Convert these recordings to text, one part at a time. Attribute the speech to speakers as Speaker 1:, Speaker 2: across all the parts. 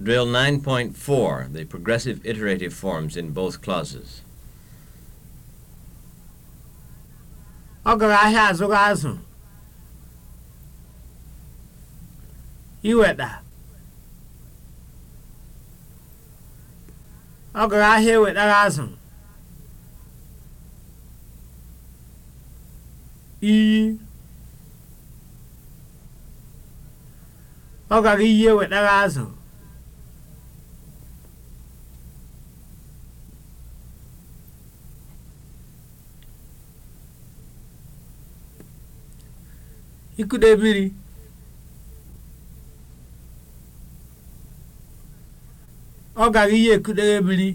Speaker 1: Drill 9.4, the progressive iterative forms in both clauses. Ọ gara ahịa azụga azụ. Iweta. Ọ gara ahịa ewetara azụ. Iyi. Ọ gara iyi ewetara azụ. ikude mmiri ọ gara iye ekudere mmiri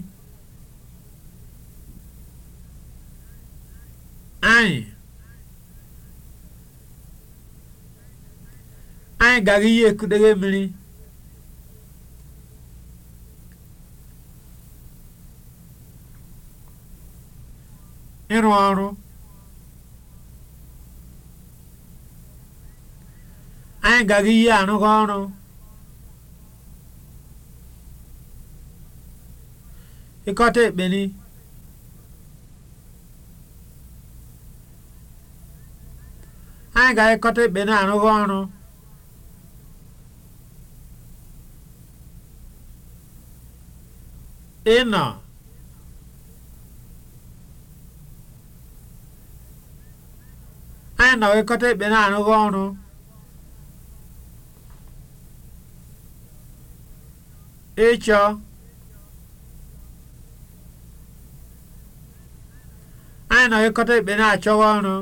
Speaker 1: anyị anyị gara ihe ekudere mmiri ịrụ ọrụ anyị gaghị ihe anụgo ọrụ ịkọta ekpeni anyị ga-ekọta ekpeni arụghị ọrụ ịnọ anyị nọ ekọta ekpeni arụghị ọrụ ịchọ anyị nọgịkọta ikpe na-achọwa ọrụ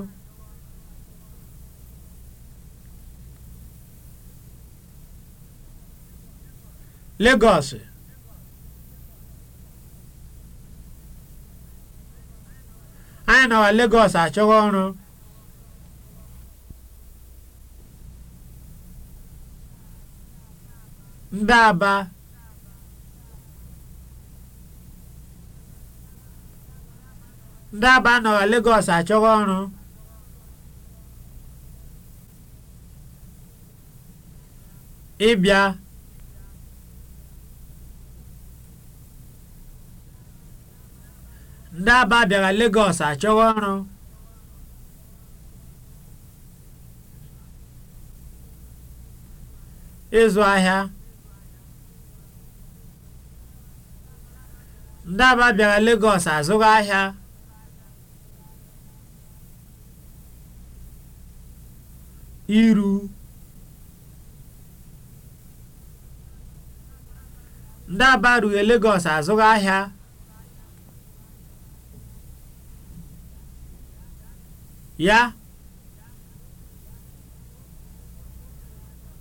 Speaker 1: Legọs anyị nọwa Legọs achọwa ọrụ ndị Aba ndị aba nọrọ Lagos achọghị ọrụ ịbịa ndị aba bịara Lagos achọghị ọrụ ịzụ ahịa ndị aba bịara Lagos azụrụ ahịa iru ndị Aba rughị Legọs azụghị ahịa ya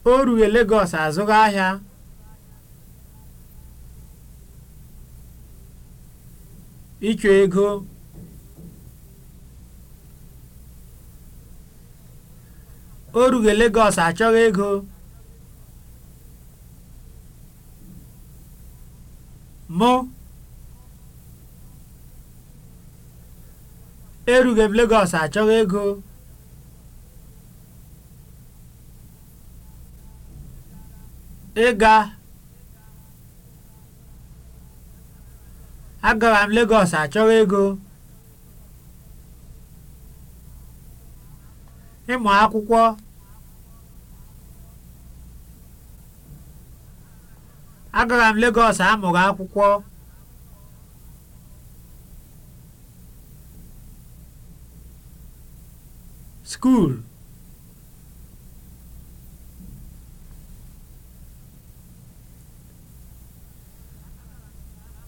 Speaker 1: o ruo Legọs azụghị ahịa ịchọ ego o rughị Legọs achọghị ego mụ erughị e m Legọs achọghị ego ịga agara m Legọs achọghị ego ịmụ akwụkwọ agara m Legọs amụrụ akwụkwọ skuul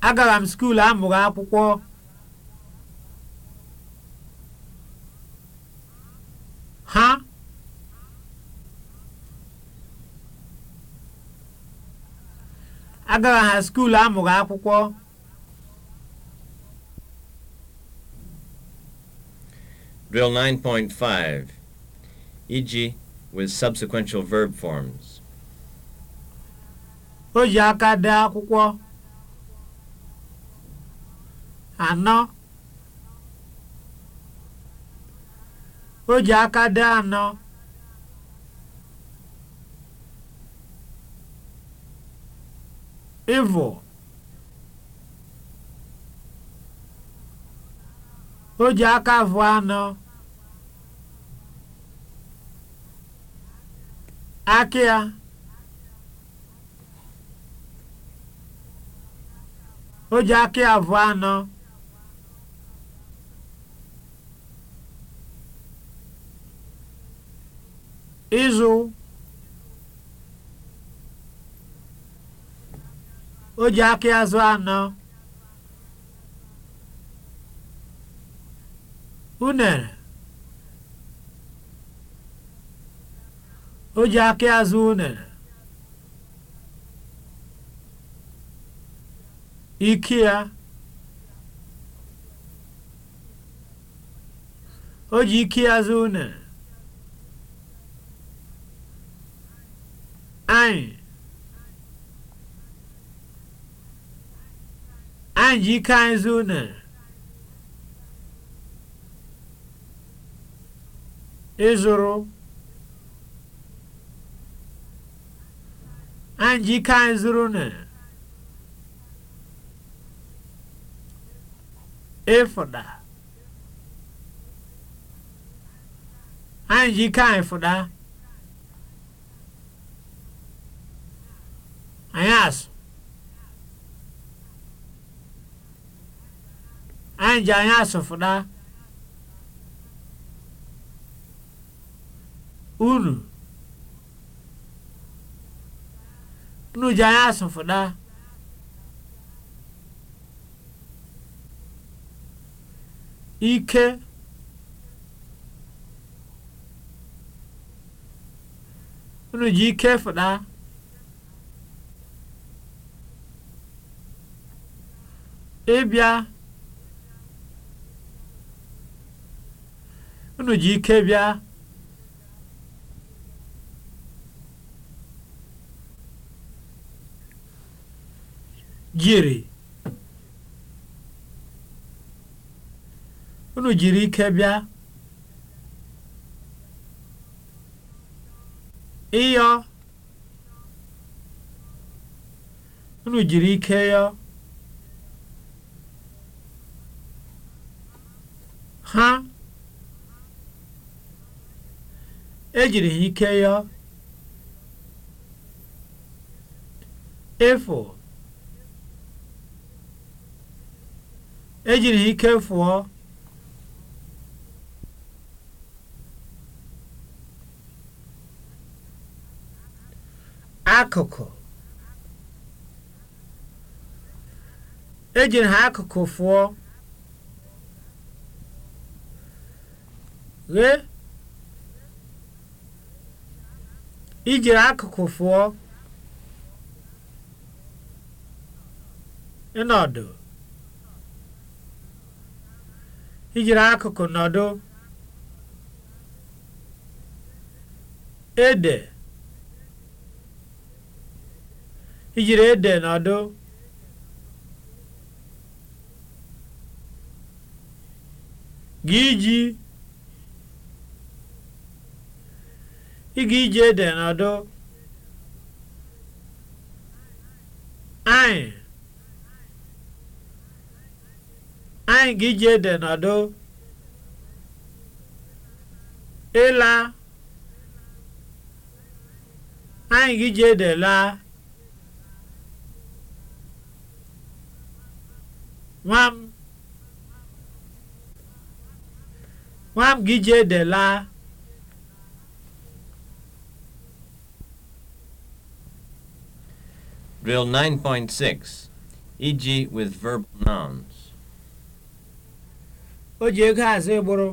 Speaker 1: agara m skuul amụrụ akwụkwọ agaghị ha skuulu amụghị akwụkwọ Drill 9.5 iji with subsequential verb forms. O ji aka dee akwụkwọ. Anọ. O ji aka dee anọ. ịvọ o ji aka vụ anọ aka ya o ji aka ya vụ anọ Izu. o ji aka azụ anọ unere o ji aka azụ unere ike ya o ji ike azụ unere anyị Nwanjikanzuna ịzụrụ Anjikanzuna ịfụda anyị asụ. anyị ji anya asụfụda unu unu ji anya asụfụda ike unu ji ike fụda ịbịa unu ji ike bịa jiri unu jiri ike bịa ịyọ unu jiri ike yọ ha ejiri ike ya efu ejiri ike fụọ akụkụ ejiri ha akụkụ fụọ ghee ijiri akụkụ fụọ ịnọdụ ijiri akụkụ nọdụ ede ijiri ede nọdụ gị iji ịga ije ede n'ọdụ anyị anyị ga ije ede n'ọdụ ịla anyị ga ije ede laa nwam nwam ga ije ede laa Drill 9.6 iji e with verbal nouns. O ji eke azụ ịgbụrụ.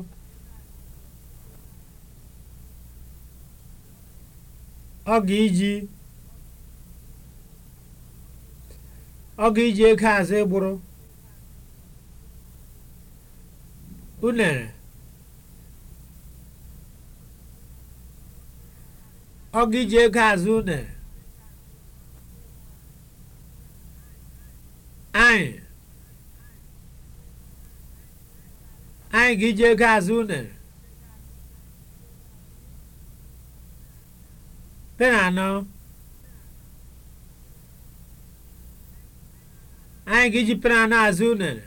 Speaker 1: Ọ ga-iji ọ ga-iji azụ ịgbụrụ. E unere. E unere. anyị anyị ga jee ego azụ unere pe anyị gị ji azụ unere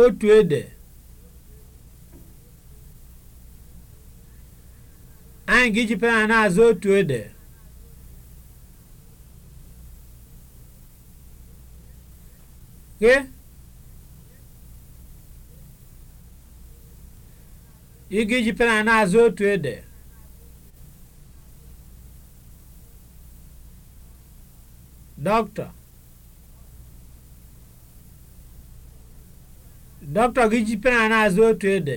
Speaker 1: otu ede anyị ga-eji pen na-azụ otu ede ị ga-eji pen na-azụ otu ede dọkịta dọkịta gị ji pen na-azụ otu ede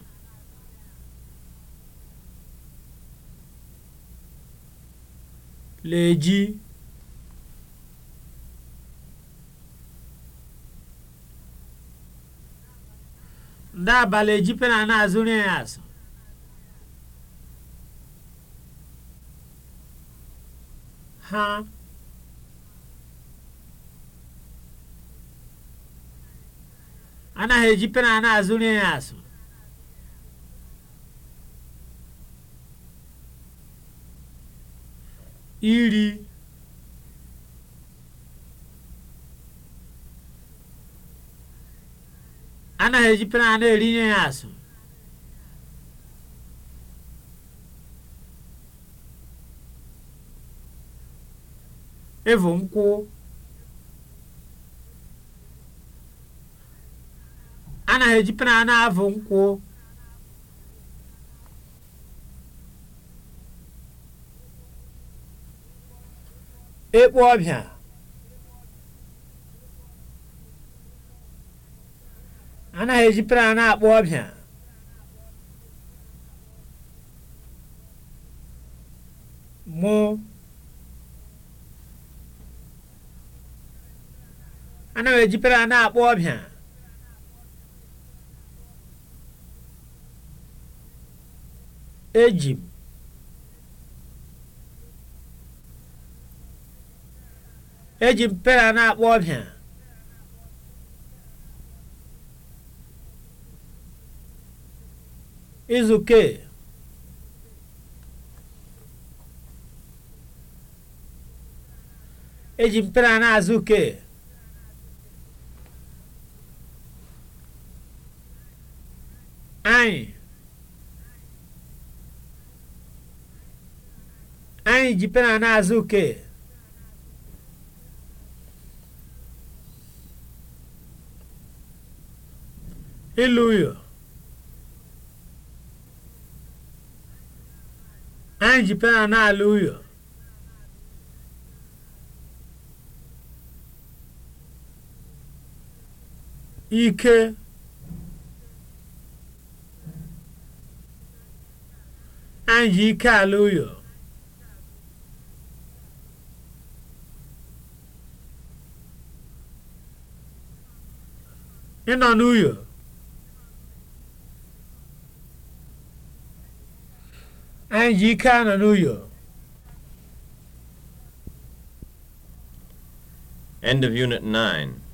Speaker 1: leji ndị eji pena na ya ha pena na-azụrụ ya azụ Iri, anaghị ejipere a na-erinye ya asụ ịvụ nkwụ anaghị ejipere a na-avụ nkwụ ekpo ọbịa anaghị eji plan akpọ ọbịa mụ anaghị eji plan akpọ ọbịa eji eji mpera na-akpọ ọbịa izuke eji mpera na-azụ uke anyị anyị ji pera na-azụ uke iluyo anyị ji pena na uyo ike anyị ji ike ala uyo ịnọ n'ụyọ. gincana no uio. End of Unit 9.